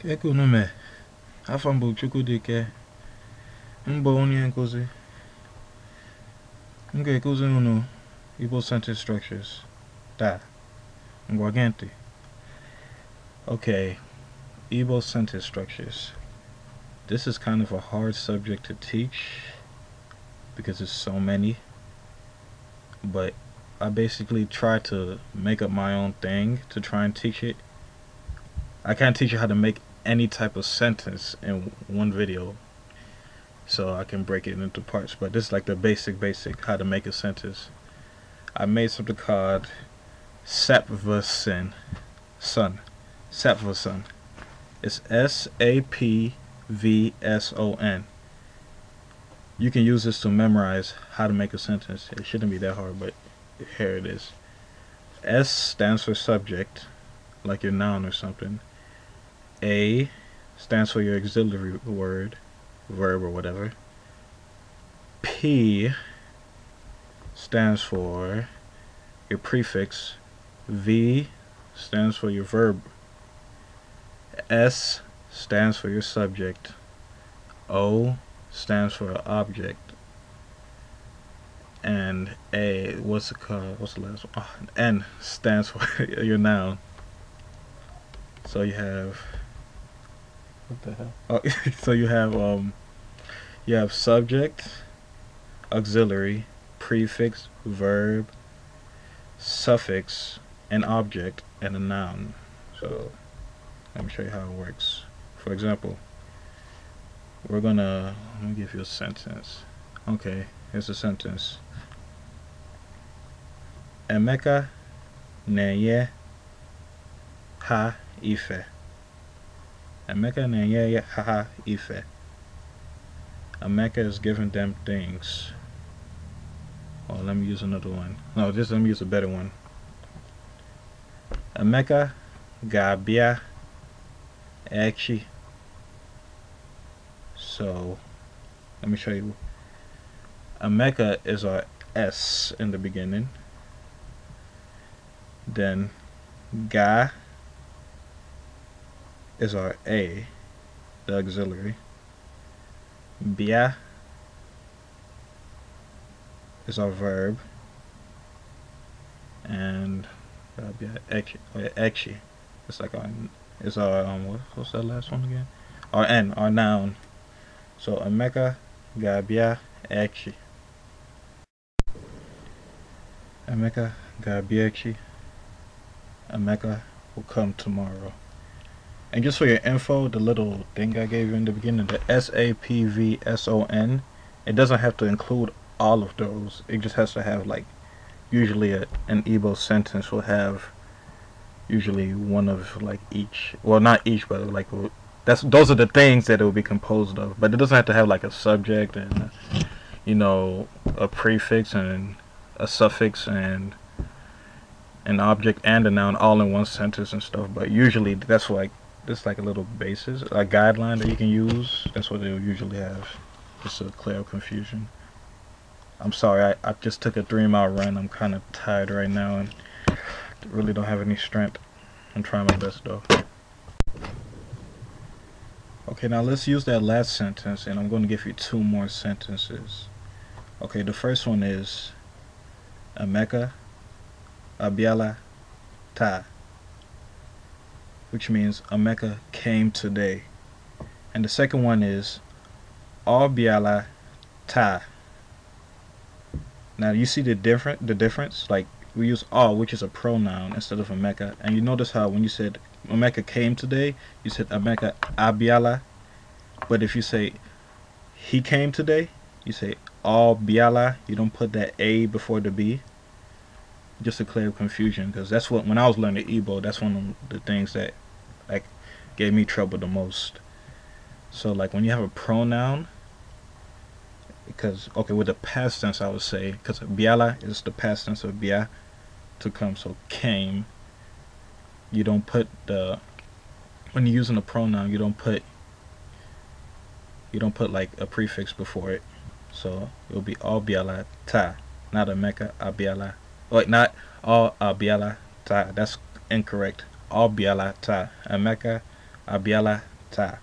ka ka me. mee afọ m bụ Chukwudike mbụ onye nkuzi m ga unu Ibo center structures Da. ngwa okay Ibo center structures this is kind of a hard subject to teach because there's so many but I basically try to make up my own thing to try and teach it I can't teach you how to make any type of sentence in one video so I can break it into parts but this is like the basic basic how to make a sentence I made something called Sapvasan Sun Sapvasan it's S-A-P-V-S-O-N you can use this to memorize how to make a sentence it shouldn't be that hard but here it is S stands for subject like your noun or something a stands for your auxiliary word, verb, or whatever. P stands for your prefix. V stands for your verb. S stands for your subject. O stands for object. And A, what's the, what's the last one? Oh, N stands for your noun. So you have what the hell? Oh, so you have um, you have subject, auxiliary, prefix, verb, suffix, an object, and a noun. So let me show you how it works. For example, we're gonna let me give you a sentence. Okay, here's a sentence. Emeka neye ha ife. America na enye haha ife. America is giving them things. Oh, let me use another one. No, just let me use a better one. America gabia echi. So, let me show you. America is our S in the beginning. Then, ga is our A, the auxiliary. Bia is our verb. And that would be our It's like our, it's our, um, what, what's that last one again? Our N, our noun. So ameka Gabia, Ekshi. Ameka Gabia, Ekshi. Ameka will come tomorrow. And just for your info, the little thing I gave you in the beginning, the S-A-P-V-S-O-N, it doesn't have to include all of those. It just has to have like, usually a, an Igbo sentence will have usually one of like each. Well, not each, but like that's those are the things that it will be composed of. But it doesn't have to have like a subject and uh, you know a prefix and a suffix and an object and a noun all in one sentence and stuff. But usually that's like it's like a little basis, a guideline that you can use. That's what they'll usually have, just to clear up confusion. I'm sorry, I, I just took a three mile run. I'm kind of tired right now and really don't have any strength. I'm trying my best though. Okay, now let's use that last sentence and I'm going to give you two more sentences. Okay, the first one is Emeka Abiala Ta which means Emeka came today. And the second one is Abiala Ta. Now you see the different the difference? Like we use all which is a pronoun instead of Emeka. And you notice how when you said Emeka came today, you said Emeka Abiala. But if you say he came today, you say Abiala. you don't put that A before the B just to clear confusion because that's what when I was learning Igbo, that's one of the things that like gave me trouble the most. So like when you have a pronoun, because okay with the past tense I would say because biala is the past tense of bia to come so came. You don't put the when you're using a pronoun you don't put you don't put like a prefix before it. So it'll be all biala ta, not a mecca abiala like not all Abiala Ta. That's incorrect. All Biala Ta. ameka Abiala Ta.